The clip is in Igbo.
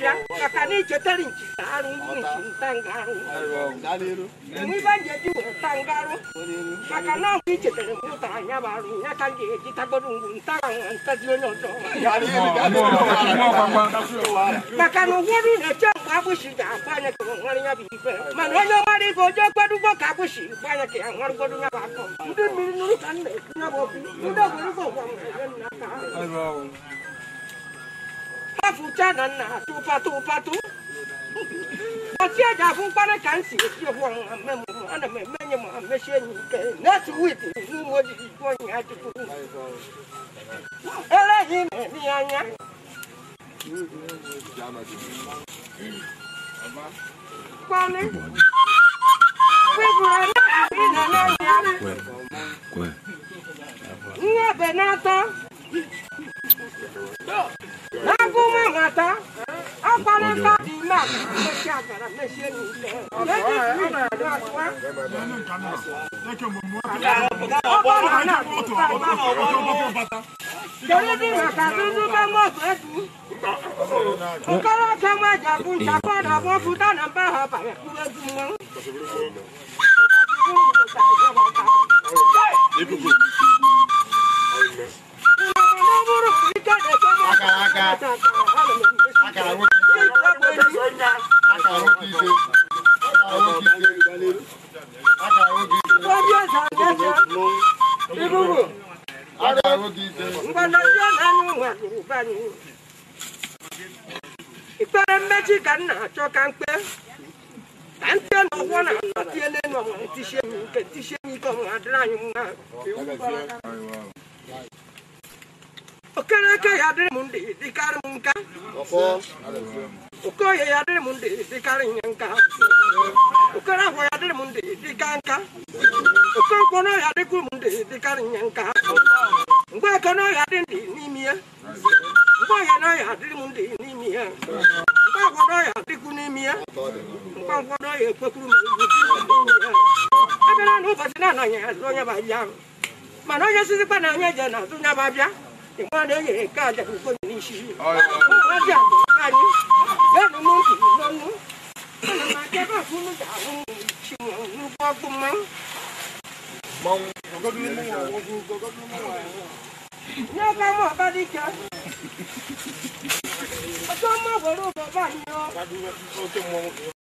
kira ka ni jotari nkiru ntangaru mwibanjeji ntangaru maka na ngi jotari muta nyabaru nyaka ngi jitagoru ntanga ntadio nyodo maka no woru ne chamba bushi ja kwanya ko ngari nyabi ipe man hoyo mari ko jo kwadu ko ka bushi kwanya ke ngari kodu nyabako ndu mi nuru kan ne nyabo ndu fuchana na tupa tupa tu wasia da fun para kansi si ho me mo ana me me nyama me she ni ke na su wit nu mo di ko ni ati ku ele hi me ni anya kwale Kwe, kwe. Nye benato bàtà ọpọlọ káàdì náà lè ṣe àgbàrá lè ṣe ní ilẹ̀ lẹ́yìn ìlú ìlú àtúwá. ọpọlọ náà ló bá wà lọ. torí bí bàtà dúdú bá mọ̀ fẹ́ dùn. nkọ́lọ́ kẹ́ mọ́ ẹ̀jà fún ìṣàkọ́dọ̀ fún fúdánà bá a bàrẹ̀ kúrẹ́ dùn mọ́. Ibubu. Ara oge ije. Mgbanazi Ikpere mmechi ka m na-achọ ka mkpe. Ka mkpe na na-anọtiele n'ọnwa ntichie m nke ntichie m ike ọnwa adịrị anyị mma. Okereke ya dịrị m ndị dịkarị m nka. Okoye ya dịrị m ndị dịkarị nye nka. agwa ya dịrị m ndị nka okonkwo n'ọhịa dịka nka mgbe n'ọhịa dị ndị n'ime ya mgbe ọhịa n'ọhịa dịrị m ndị n'ime ya mgbe agwa n'ọhịa dịkwu n'ime ya mgbe agwa n'ọhịa ekwekwuru m ya na ụbọchị na onye babịa mana onye sizikwa na onye na-azụ onye babịa ịgba na-enyere nke aja bụ n'isi ụmụazị anyị mong mong nhớ cái mỏ ba đi chơi cho mỏ vào đâu vào bao nhiêu